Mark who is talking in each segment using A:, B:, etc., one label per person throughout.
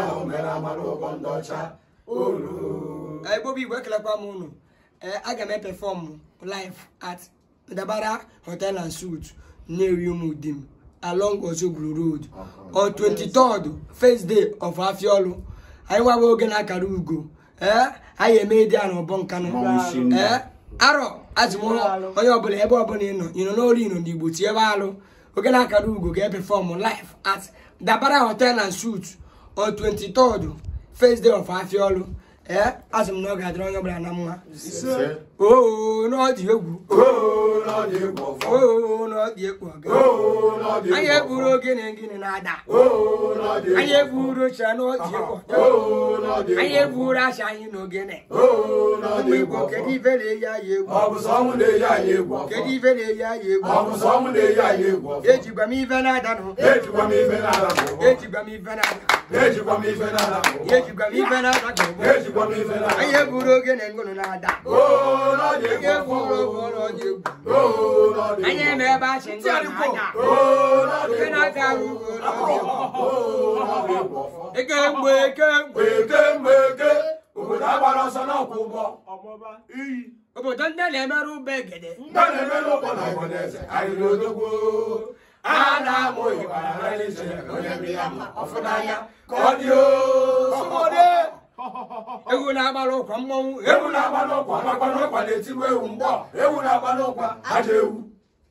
A: ahụ mere amara ụgbọ ndị ọcha olu ebobi igwe ekelekwa m unu aga m epefọm live at dabara hotel and suit na-eri ụmụ di m along Ozubulu road on 23rd first day of Afiolu anyị nwabụ oge na-akara ugo ee anyị eme dị a na ọbọ nkanụ ee arọ azụmụlọ onye ọbụla ebe ọbụla ịnọ ịnọ n'olu ịnọ n'igbo tie ebe alụ oge na-akara ugo ga-epefọm live at dabara hotel and suit on twenty third, first day of Afiolu eh asị m na ọ ga-adịrị onye ọbụla na mma oo na ọ dị egwu oo na ọ dị egwu ọga anyị egburu ogene gịnị na-ada oo anyị eburu oche n'oji ịkwọ anyị eburu acha anyị n'ogene ụmụ kedu ibe na-eyi anyị egwu kedu ibe na-eyi anyị egwu ejikwa m ibe na-ada nụ m ibe na-ada anyị eburu ogene ngụnụ na-ada anyị eburu oge ụlọ ọji egwu anya eme ebe achị ndị nke na-aga ooo ekemgbe ekemgbe ekemgbe eke obodo agbara ọsọ n'ọkwụ ụgbọ obodo ndị na-emere ụgbọ egede ndị na-emere ụgbọ na ọgbọneze na odogwo a na-amụ ịgbara na n'izu onye mmiri ama ọfụ n'anya ka ọ dị ooo Ewu na-agbalị ụkwa mmọnwụ ewu na-agbalị ụkwa na ewu ewu na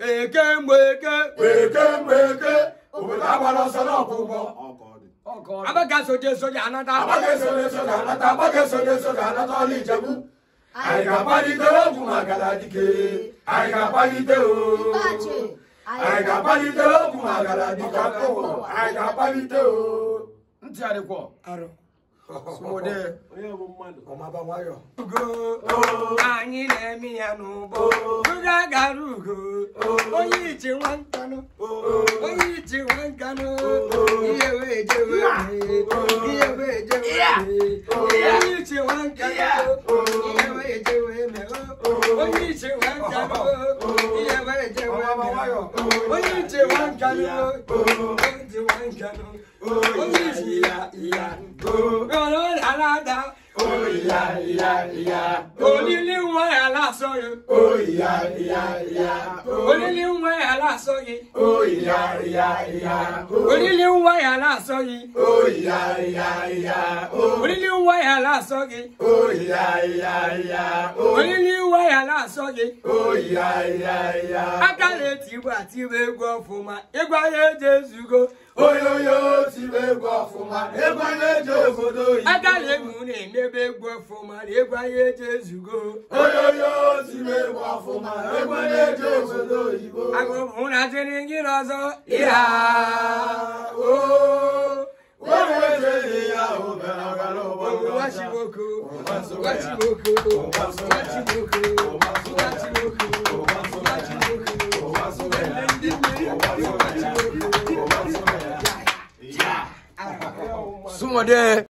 A: eke mgbe eke eke eke obodo agbara ọsọ n'ọkụ ụgbọ anata anata anyị ga-akpalite ogwu maka na dike anyị ga-akpalite anyị ga-akpalite ogwu dike anyị ga-akpalite anyị na-eme ya n'ụgbọ rugo onye ije nwa nkanụ onye ije nwa nkanụ ihe wee jewe ihe wee jewe onye ije nwa nkanụ ihe wee jewe me onye ije nwa nkanụ ihe wee jewe me onye ije nwa nkanụ onye ije nwa nkanụ onye ije ya ya ìyá ìyá ìyá. onílé wọn ẹ̀ aláṣọ yẹn. ó ìyá ìyá ìyá. onílé wọn ẹ̀ aláṣọ yẹn. ó ìyá ìyá ìyá. onílé wọn ẹ̀ aláṣọ yẹn. ó ìyá ìyá ìyá. onílé wọn ẹ̀ aláṣọ yẹn. ó ìyá ìyá ìyá. onílé wọn ẹ̀ aláṣọ yẹn. ó ìyá ìyá ìyá. akálẹ̀ tìwà tìwé gbọ́ fún ma ìgbà yẹn jésù go. oyoyo tìwé gbọ́ fún ma ìgbà yẹn jésù go. akálẹ̀ na-emebe egwu ọfụma na egwu anyị eji ezugo agụụ na jiri gị n'ọzọ ịha Wachiboku, wachiboku, wachiboku, wachiboku. Somewhere there.